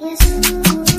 Yes.